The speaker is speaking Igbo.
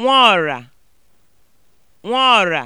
nwaọ̀rà nwaọ̀rà